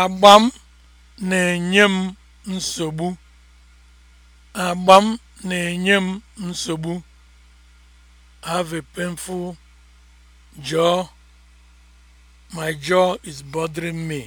agba m na-enye m nsogbu agbam na-enye m nsogbu have a painful jaw my jaw is bothering me